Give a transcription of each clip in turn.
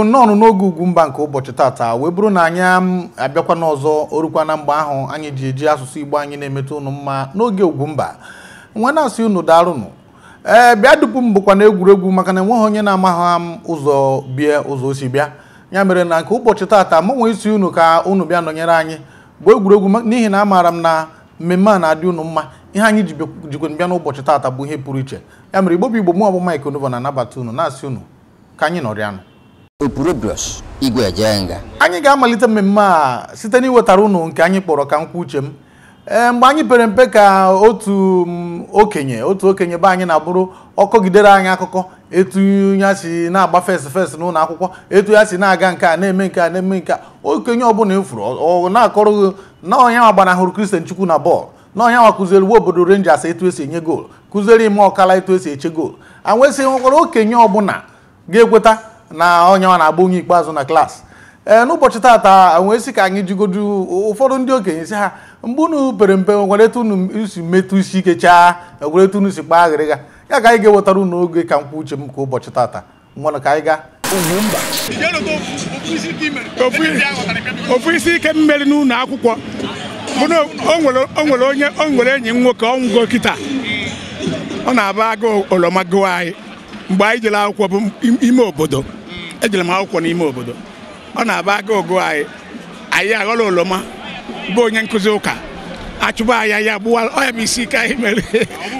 igbo nnọọ n'oge ugwu mba nke ụbọchị tata wee bụrụ na anyị um, abịakwa n'ọzọ orukwa na mgbe ahụ anyị ji eji asụsụ igbo anyị na-emetụ ụnụ mma n'oge ugwu mba nwa na-asị unu daalụnụ ee bịa dupu m bụkwa na egwuregwu maka na enweghị onye na-amaghị m um, ụzọ bie ụzọ osi bịa ya mere na nke ụbọchị tata mụ nwee isi unu ka unu bịa nọnyere anyị bụ egwuregwu n'ihi na amaara m na mmemme a na-adị unu mma ihe anyị jikwe bịa n'ụbọchị tata bụ ihe pụrụ iche ya mere igbo bụ igbo mụ ọbụ na-anabata unu na-asị unu ka anyị nọrịanụ opurobrus igwe eje anyị ga-amalite mmemme a site n'iwetara unu nke anyị kpọrọ ka nkwa uche m eh, mgbe anyị pere mpe ka otu mm, okenye otu okenye be anyị na-abụrụ ọkọgidere anyị akụkọ etu ya si na-agba fes fes n'ụlọ akwụkwọ etu ya si na-aga nke a na-eme nke a na-eme nke a okenye ọbụla efuru ọ na-akọrọ na onye nwa gbanahụrụ kristian chukwu na bọọlụ na onye nwa kụziere uwe obodo renjas etu esi enye goolu kụziere ime ọkala etu esi eche goolu anwesịghị nwekwara okenye ọbụla ga-ekweta na onye ọ na-agba onye ikpeazụ na klaasị ee eh, n'ụbọchị tata wee sị ka anyị jigodu ụfọdụ ndị okenye si ha mgbe unu pere mpe nwereta unu si metụ isi ike chaa egwereta unu si kpaa aghịrịga ya ka anyị ga-ewetara unu oge ka mkpa uche m ka ụbọchị tata mmanụ ka anyị gaa ofu isi ike mmeri n'ụlọ akwụkwọ o nwere onye o nwere enyi m nwoke ọnwụgo kịta ọ na-aba agụ olomago anyị mgbe anyị jere akwụkwọ bụ ime obodo ejere m akwụkwọ n'ime obodo ọ na-aba aga ogo anyị anyị aghọla oloma bụ onye nkụzi ụka achụba anya ya gbuwa ọya bụ isi ike anyị mere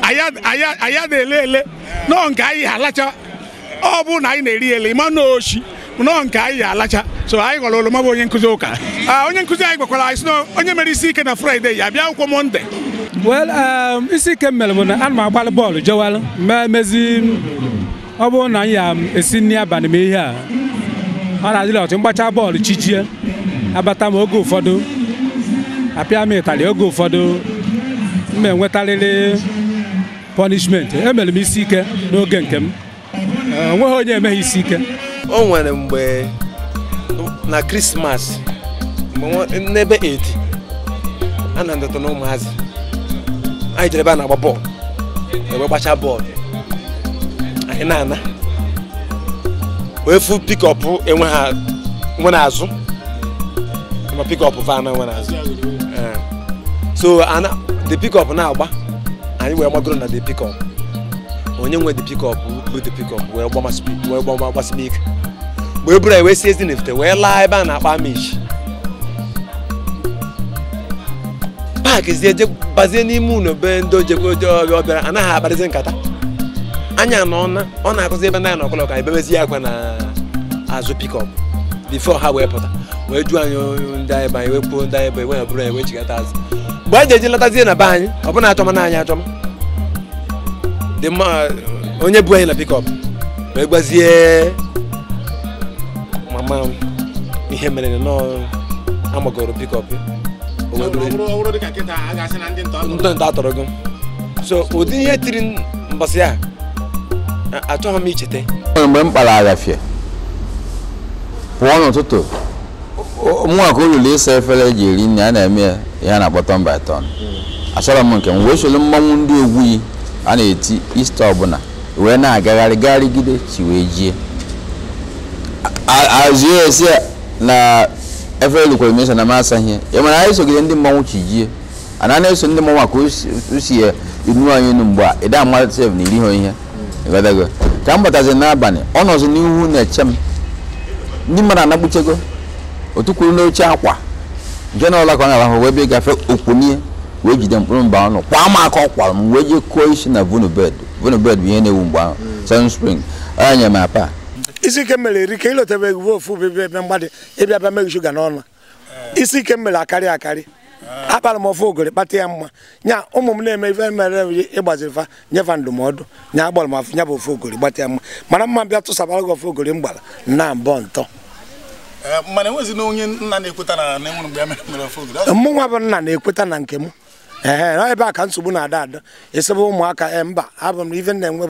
anyị na-ele ele nọọ nke anyị alacha ọ bụ na anyị na-eri ele ịma na oshi nọọ nke anyị alacha so anyị ghọrọ oloma bụ onye nkụzi ụka onye nkụzi anyị gwakwara anyị sị onye mere isi ike na fraịde ya bịa akwụkwọ mọnde well um, isi ike m mere bụ na ana m agbalị bọọlụ jewalụ mee ọ bụrụ na anyị ya esi nri abalị ma ihe a ọ na adịla ọtụ mgbacha bọọlụ chijie abata m oge ụfọdụ apịa m ịtalị oge ụfọdụ m enwetarịrị pọnishmenti emere m isi ike n'oge nke m onweghị onye emeghị isi ike o nwere mgbe na krismas n'ebe edi a na-adọta na ụmụazị anyị jere ebe a na-agba bọọlụ ebe gbachaa bọọlụ hinana wee fu pikọp enwe ha nwe n'azụ ma pikọp van nwe n'azụ eh. so ana the pikọp na-agba anyị wee gbagoro na the pikọp onye nwe the pikọp bụ the pikọp wee gbama gbasịm ike mgbe eburu anyị wee si ezi nefute wee laa ebe a na-akpa amish paakị zie bazie n'ime ụlọ be ndị ojebịa anaghị akparịzi nkata anya na ọna ọ na-akụzi ebe ndị anyị na ọkọlọka anyị akwa na azụ pikọp bifo ha wee pụta wee ju anyị ndị anyị banye wee kwuo ndị anyị bụ enwe bụrụ anyị chigata azụ mgbe anyị ji eji lọtazie na be anyị ọ bụna achọma na anyị achọma dị mma onye bu anyị na pikọp wee gbazie mama ihe mere nọọ amagoro pikọp ntọ so ụdị ihe tiri achọghị m icheta mgbe m kpara pụọ n'ụtụtụ mụnwa ka olulu ịsa efere eji eri nri a na-eme ihe a na-akpọ by achọrọ m nke m wee mmanwụ ndị egwuyi a na-eti ista ọbụla wee na-agagharị gagharịgide chi wee jie m ya mana anyị sogide ndị mmanwụ chi jie eso ndị mmanwụ ya inu anyị ihe ịghọtago ka m batazi n'abalị ọ nọzi n'ihu na-eche m ndị mmadụ anagbuchego otu kwuru n'oche akwa nke na ọla ka ọ na-arahụ wee bịa gafe okpunie wee jide mkpụrụ mba ọnụ kwa m aka ọ m wee jee kụọ isi na vunubed vunubed bụ ihe na-ewu mgbe ahụ sun spring ọ nyere m apa isi ike mere eri ka ịlọtabeghị ofu ofu ebe mgbadị ịbịa bịa meghi shuga n'ọnụ isi ike mere akarị akarị akpara m ofe ogori kpata ya mma nya ụmụ m na-eme ife mere ịgbaziri fa nyefa ndụmọdụ nya agbara m afụ bụ ofe ogori gbata ya mma mana mma bịa tụsabara gị ofe ogori m na mbọ ntọ mụ nwa bụ nna na-ekweta na nke m ee ebe a ka nsogbu na-ada ada esebe ụmụaka ee eh, mba abụ m ife na-enwe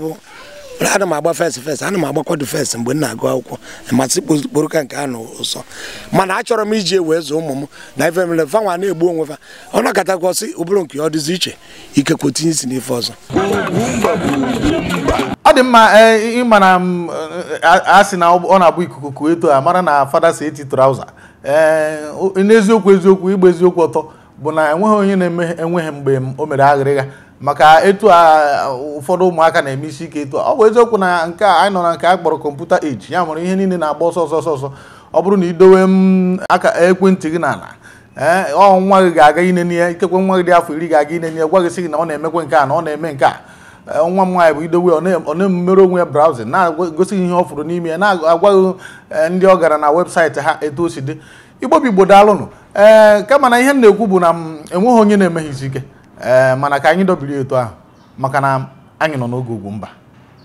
mana ana m agba fes fes ana m agbakwado fes mgbe m na-agụ akwụkwọ masị kpokporo ka nke a na ụsọ mana achọrọ m iji wee zụọ ụmụ m na ife mere fa na-egbu onwe fa ọ nọkatakwa sị ụbụrụ nke ọ dịzi iche ikekwe tinye isi n'ife ọzọ ọ dị mma e, ịmana na a sị na ọ na-abụ ikuku kuo eto a mara na fada si eti trauza e, n'eziokwu eziokwu ịgba eziokwu ọtọ bụ na enweghị onye na-enweghị mgbe o mere aghịrịgha maka etu a ụfọdụ ụmụaka na-eme isi ike etu ọ bụ eziokwu na nke a anyị nọ na nke a kpọrọ kọmputa eji ya mụrụ ihe niile na-agba ọsọ ọsọ ọsọ ọ bụrụ na idowe m aka ekwentị gị n'ala ee eh, ọ nwa gị ga-aga inene ya ikekwe nwa gị dị afọ iri ga-aga ine ya gwa gị sị gị na ọ na-emekwe nke a na ọ na-eme nke a eh, nwa m nwaanyị bụ idowe ọ na-emere onwe ya brawzin na-egosi ihe ọ fụrụ n'ime ya na-agwaghị eh, ndị ọ gara na webụsaịtị ha etu o si dị igbo bụ daalụnụ ee kama na ihe m na-ekwu bụ na enweghị onye na-emeghị isi ike ee eh, mana ka anyị dobiri etu ahụ maka na anyị nọ n'oge ugwu mba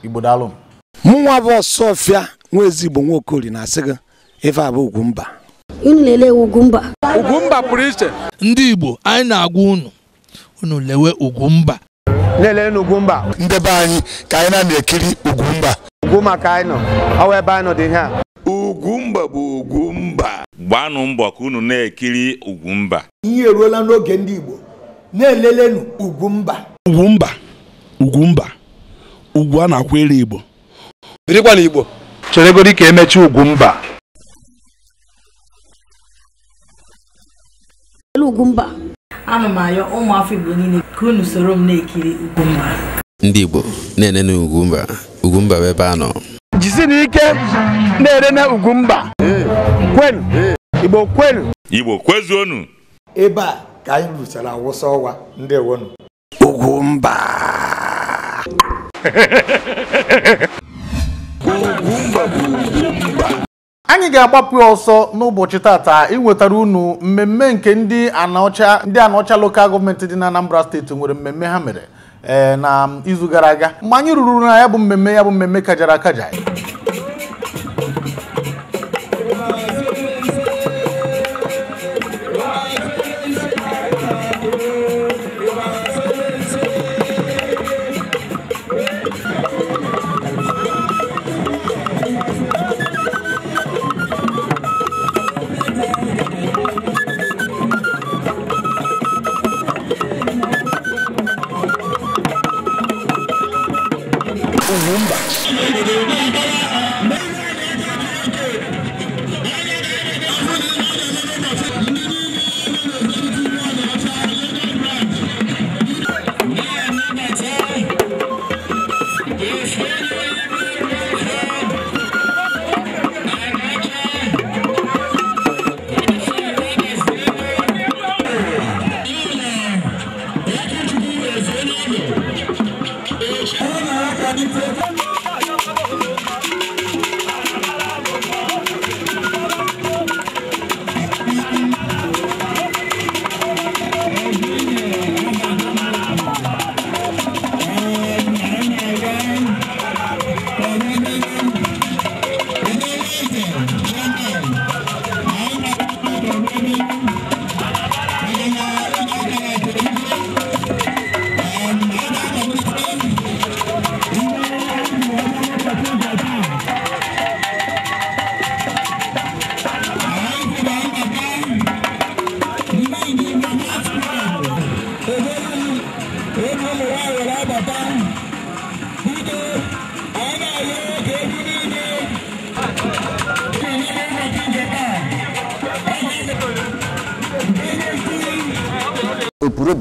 igbo daalụ m mụnwa bụ ọsọfịa nwa ezigbo nwaokori na-asị gị ife abụ ugwu mba unu na-ele pụrụ iche ndị igbo anyị na-agwa unu unu lewe Ugwumba. mba lelee ndebe anyị ka anyị na-ekiri Ugwumba. mba ugwu maka anyị nọ ọwa ebe anyị nọ dị ihe bụ Ugwumba. mba gbaanụ mbọ ka unu na-ekiri Ugwumba. mba ihe eruola n'oge ndị igbo na-elelenu Ugwumba Ugwumba Ugwumba ugwu a na-akwụ elu Igbo birikwa na Igbo cheregodi ka emechi Ugwumba Ugwumba ana m ayọ ụmụafọ Igbo niile ka unu soro m na-ekiri Ugwumba ndị Igbo na-ene na Ugwumba Ugwumba bụ ebe a nọ jisina ike na-ere na Ugwumba kwenu Igbo kwenu Igbo kwezuonu ebe a ka anyị awụsa ọwa ndewonu ugwu mba anyị ga-agbapụ ọsọ n'ụbọchị tata inwetara unu mmemme nke ndị anaọcha ndị anaọcha lokal gọọmenti dị na Anambra steeti nwere mmemme ha mere eh, na izu gara aga mgbe anyị ruru na ya bụ mmemme ya bụ mmemme kajara akaja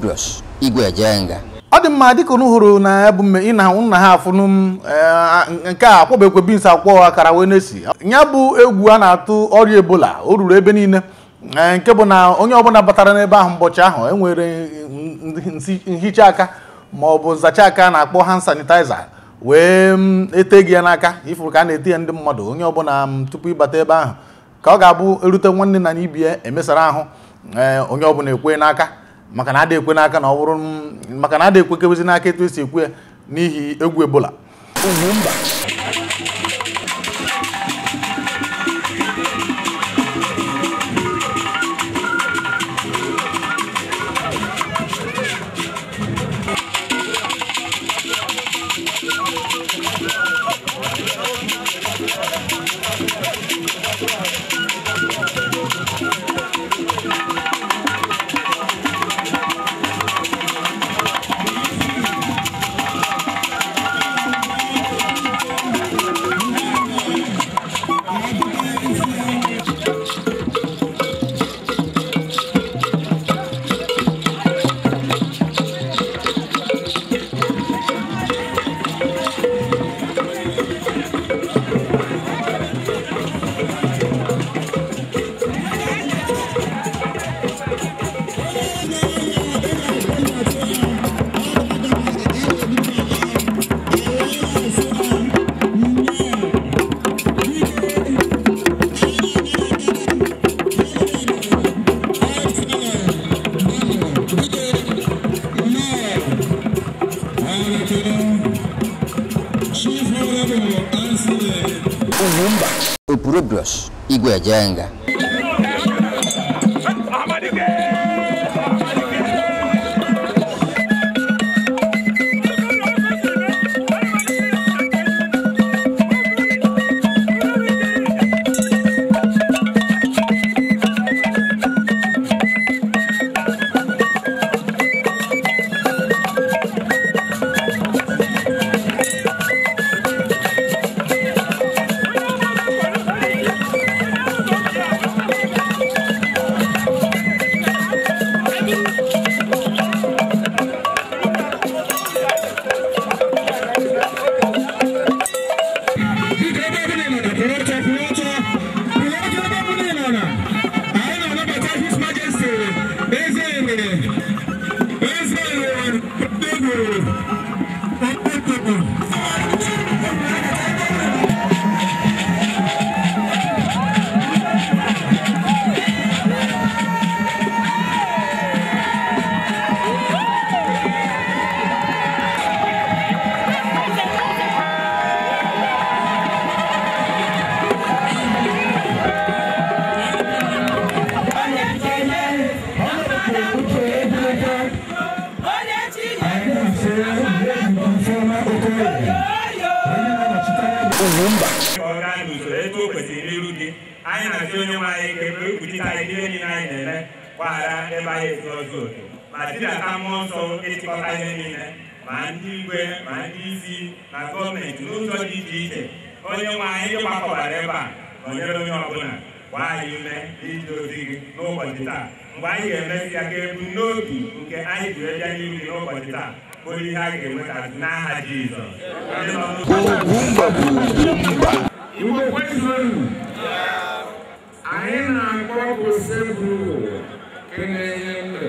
Kudros Igwe Ejenga ọ dị mma ka unu hụrụ na ị na nna ha afụnụ m eh, nke a kwọbekwe bins akwọ akara wee na-esi ya bụ egwu a na-atụ ọrịa ebola o ruru ebe niile eh, nke bụ na onye ọbụla batara n'ebe ahụ mbọchị ahụ enwere nhicha aka ma ọ bụ nzacha aka na-akpọ hand sanitizer wee mm, ete gị ya n'aka ifuru ka a na-ete ya ndị mmadụ onye ọbụla m mm, tupu ịbata ebe ahụ ka ọ ga-abụ erute nwanne na n'ibie emesara ahụ eh, onye ọbụla ekwe n'aka maka na ada ekwe n'aka na ọ maka na ada ekwekebezi n'aka etu esi ekwe ya n'ihi egwu ebola Thank you. i 一锅 ajaenga。Olumba ọrụ anyị n'usoro etu o kwesịrị n'iru dị anyị na-asị onye nwe anyị ka ebe ekwuchite anyị niile anyị na-eme gbaghara ebe anyị esi ọzọ otu ma tinata mmụọ nsọ ịchịkọta ihe niile ma ndị igwe ma ndị isi na gọọmenti n'ụzọ dị iche iche onye nwe anyị ebe a nọnyere onye ọbụla anyị ume gị n'ụbọchị taa ga n'obi nke onye ihe anyị ga-enweta n'aha Jizọs mgbe kwesịrị anyị na-akpọpụ sebụl nke na-enye ndụ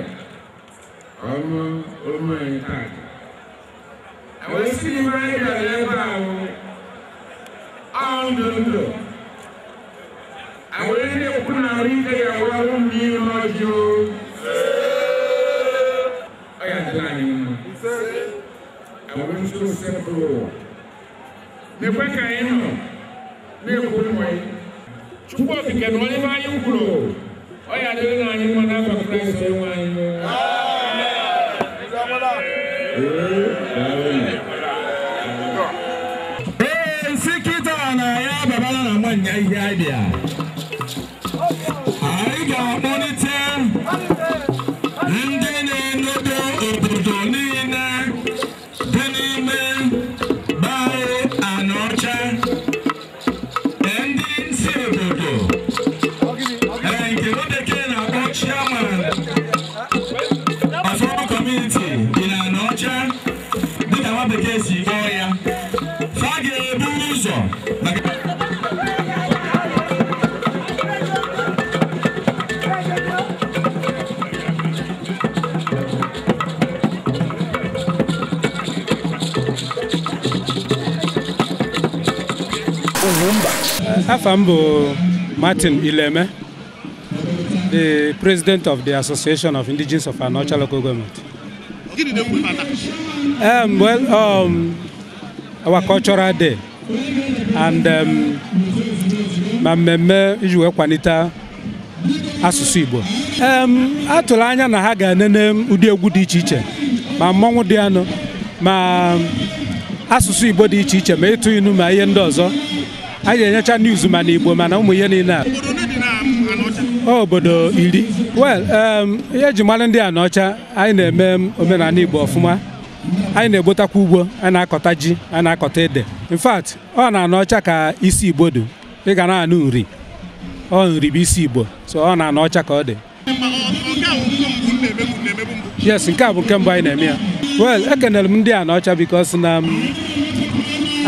ọrụ omenkà o sighị ebe anyị nipweka ino nekumoyi chukwu ofike na onye be anyị kwuru Afam Martin Ileme, the president of the Association of Indigenous of Anocha Local Government. Um, well, um, our cultural day and um, ma mmemme iji wee kwanite asụsụ Igbo um, atụrụ anya na ha ga-enene ụdị egwu dị iche iche ma mmọnwụ di anụ ma asụsụ Igbo dị iche iche ma ịtụ inu ma ihe ndị ọzọ anyị na-enyecha niuz mana igbo mana ụmụ ihe niile a obodo iri wel ihe eji mmanụ ndị a n'ọcha anyị na-eme omenala igbo ọfụma anyị na-egbotakwa ugbo a na-akọta ji a na-akọta ede in fact ọ na Anaọcha ka isi igbo dị ị ga na-anụ nri ọ nri bụ isi igbo so ọ na Anaọcha ka ọ dị yes nke a bụ nke mbụ anyị na-eme ya well ekenere m ndị a n'ọcha because na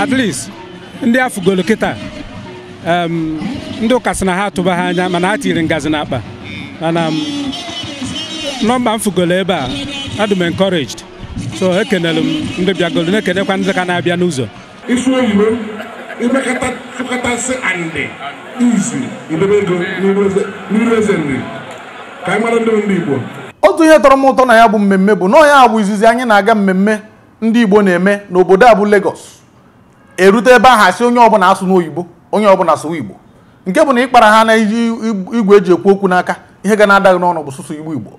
at least ndị afụgolo kịta ndị ụka sị na ha atụba ha anya mana ha tiri ngazi n'akpa mana nọmba m fụgolo ebe a adị m encouraged so ekenere m ndị bịagolo na-ekenekwa ndị ka na-abịa n'ụzọ ka anyị ndị Igbo otu ihe tọrọ m ụtọ na ya bụ mmemme bụ na ya bụ izizi anyị na-aga mmemme ndị Igbo na-eme n'obodo a bụ legos erute ebe ahụ asị onye ọbụla asụ n'oyibo onye ọbụla asụwa igbo nke bụ na ịkpara ha na iji igwe eji ekwu okwu n'aka ihe ga na-adaghị n'ọnụ bụ sụsụ igbo igbo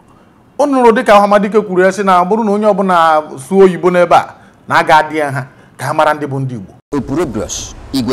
o nụrụ dịka ọhamadike kwuru ya sị na bụrụ na onye ọbụla asụ oyibo n'ebe a na-aga adịghị ha ka ha mara ndị bụ ndị igbo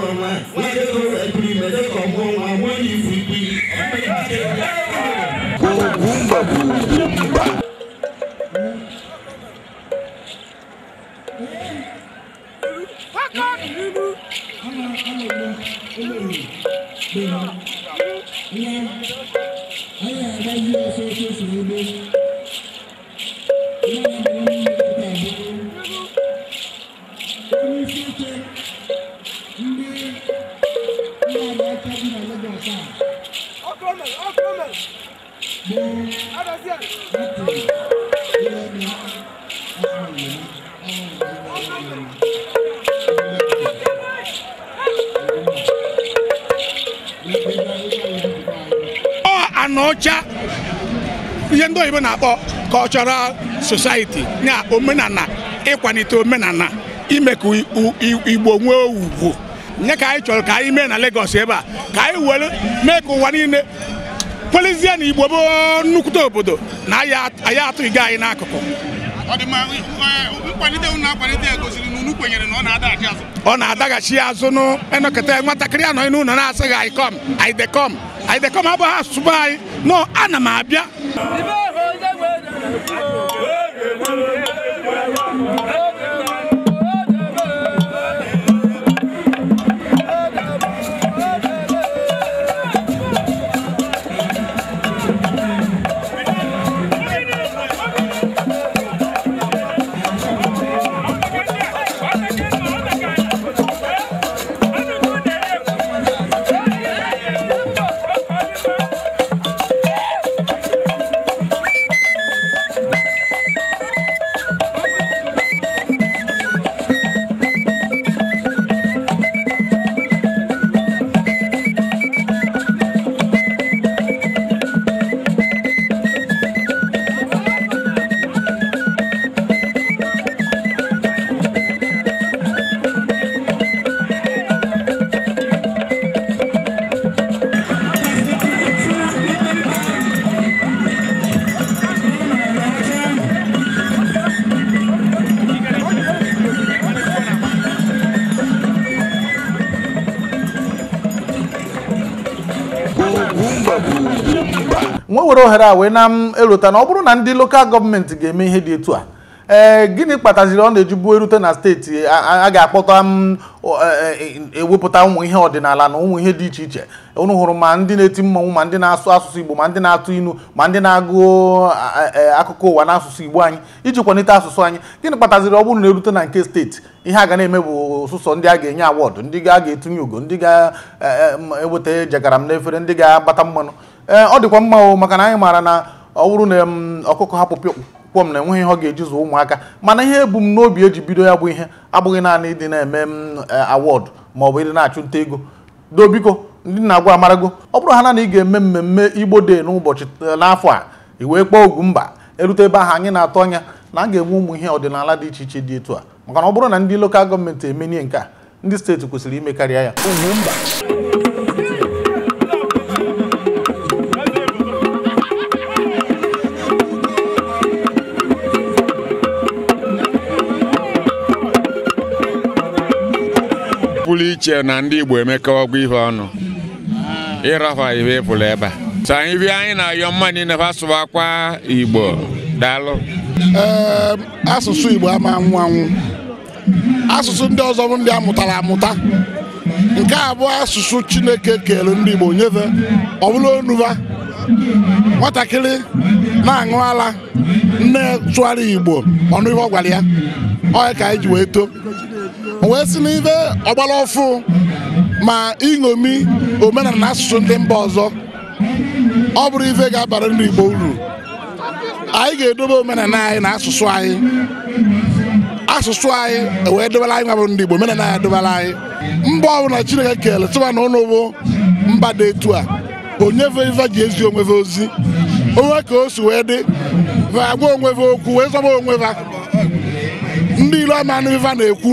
Bye. na ọcha ihe ndị oyibo na-akpọ cultural society ya omenala ịkwalite omenala ime ka igbo nwee ugwu nye ka anyị chọrọ ka anyị mee na legos ebe a ka anyị were mee ka ụwa niile kwelizie na igbo bụ nnukwute obodo na anyị atụghị anyị n'akụkụ ọ na-adaghachi azụ nụ enọkọta nwatakịrị anọghị n'ụlọ na-asịghị anyị kọm anyị dekom anyị dekọm abụghị asụsụ bụ anyị nọ ana m abịa were ohere a wee na-erute na ọ bụrụ na ndị lokal gọọmenti ga-eme ihe dị etu a ee eh, gịnị kpataziri ọ na-ejibu erute na steeti a ga-akpọta m ewepụta e, e, e, ụmụ ihe ọdịnala na ụmụ ihe dị iche iche unu hụrụ ma ndị na-eti mmanwụ ma ndị na-asụ asụsụ Igbo ma ndị na-atụ inu ma ndị na-agụ akụkọ ụwa n'asụsụ Igbo anyị iji kwalite asụsụ anyị gịnị kpataziri ọ bụrụ na erute na nke steeti ihe a ga na-eme bụ ụsụsọ ndị a ga-enye awọdụ ndị a ga-etunye ugo ndị ga-eweta jegara m n'efere ndị ga-agbata mmanụ ee eh, ọ dịkwa mma o maka na anyị maara na ọ bụrụ na ọkụkọ hapụ m na enweghị ihe ọ ga-eji zụọ ụmụaka mana ihe ebumnobi eji bido ya bụ ihe abụghị naanị ịdị na-eme eh, awọdụ ma ọ bụ ịdị na-achụ nta ego do biko ndị na-agwa amarago ọ bụrụ ha na na ị ga-eme mmemme igbo de n'ụbọchị eh, n'afọ a i wee kpọọ ogwu mba erute ebe ahụ anyị na-atụ anya na a ga-enwe ụmụ ihe ọdịnala dị iche iche dị etu a maka na ọ bụrụ na ndị lokal gọọmenti emenie nke a ndị steeti kwesịrị ime karịa ya ogwu mba pụrụ iche na ndị Igbo emeka ọgwụ ihe ọnụ ịrafa ibe pụrụ ebe a Sa anyị bịa anyị na-ayọ mma niile fa akwa Igbo daalụ ehm, asụsụ Igbo ama anwụ anwụ asụsụ ndị ọzọ bụ ndị amụtara amụta nke a asụsụ Chineke kere ndị Igbo nyefe ọ bụla onuba nwatakịrị na-aṅụ ala nne tụgharị Igbo ọnụ ihe ọ gwara ya ọ ka anyị ji wee too wee si n'ife ọgbara ọfụ ma iṅomi omenala na asụsụ ndị mba ọzọ ọ bụrụ ife ga-abara ndị Igbo uru anyị ga-edobe omenala anyị na asụsụ anyị asụsụ anyị wee dobara anyị nwabụ ndị Igbo omenala anyị adobara anyị mba ọbụla Chineke kele tụba na ụlọ bụ mba dị etu a onyefe ife ji ezi onwefe ozi onwe ka o si wee dị agwa onwefe okwu wee zọba onweva ndị ilu ama anụ ife na-ekwu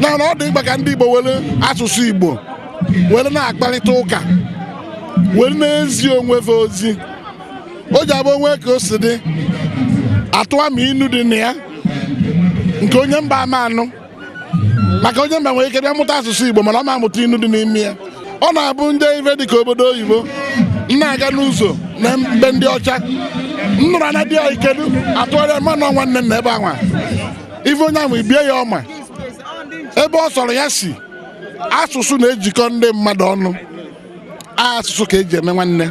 na ọ dị mkpa ka ndị Igbo were asụsụ Igbo were na-akparịta ụka were na-ezi onwefe ozi o ji abụ onwe ka o si dị atụwa ma inu dị na ya nke onye mba ama anụ maka onye mba nwere ike bịa mụta asụsụ Igbo mana ọ ma amụta inu dị n'ime ya ọ na-abụ ndị dị ka obodo oyibo na-aga n'ụzọ na mbe ndị ọcha nnụrụ anya dị ya ikedu atụgharịa mmanụ nwanne nne na ebe anwa ife onye ahụ ibie ya ọma ebe ọ sọrọ ya si asụsụ na-ejikọ ndị mmadụ ọnụ asụsụ ka eji eme nwanne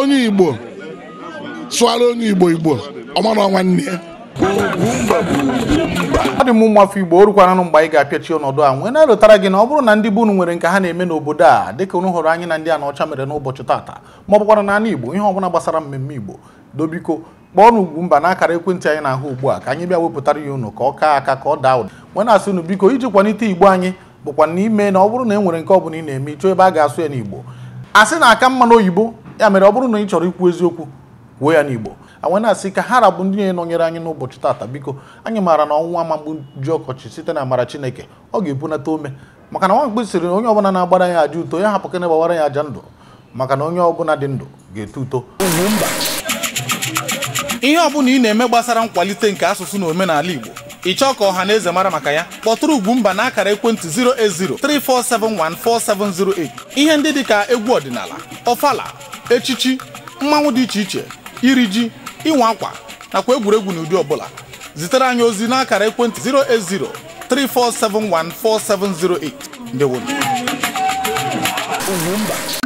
onye Igbo sụara onye Igbo Igbo ọmara nwanne ya ọ dị m ụmụ afọ Igbo orukwananụ mgbe anyị ga-apịachi ọnọdụ a nwee na-erutara gị na ọ bụrụ na ndị be nwere nke ha na-eme n'obodo a dịka unu hụrụ anyị na ndị a na ọcha mere n'ụbọchị tata ma ọ bụkwara na anụ Igbo ihe ọbụla gbasara mmemme Igbo dobiko kpọọ n'ugwu mba n'akara ekwentị anyị na-ahụ ugbu a ka anyị bịa wepụtara ya unu ka ọ kaa aka ka ọ daa ụda nwe na-asị unu biko iji kwanite igbo anyị bụkwa na ime na ọ bụrụ na e nwere nke ọbụla ị na-eme ịchọ ebe a ga-asụ ya n'igbo asị na aka mma n'oyibo ya mere ọ bụrụ na ị chọrọ ikwu eziokwu kwuo ya n'igbo anwe na-asị ka ha rabụ ndị na-enọnyere anyị n'ụbọchị tata biko anyị maara na ọnwụnwa amagbu ji ọkọchị site na amara chineke ọ ga-ebunata ome maka na nwamkpi sịrị na onye ọbụla na-agbara ya aja uto ya hapụ ka ya aja ndụ maka na onye ọbụla dị ndụ ga-eto uto ihe ọbụla ị na-eme gbasara nkwalite nke asụsụ na omenala Igbo ị chọọ ka ọha na eze mara maka ya kpọtụrụ Ugwumba na akara ekwentị 08034714708 ihe ndị dịka egwu ọdịnala ọfala echichi mmanwụ dị iche iche iri ji ịnwa akwa nakwa egwuregwu n'ụdị ọbụla zitere anyị ozi n'akara ekwentị 08034714708 ndewo Ugwumba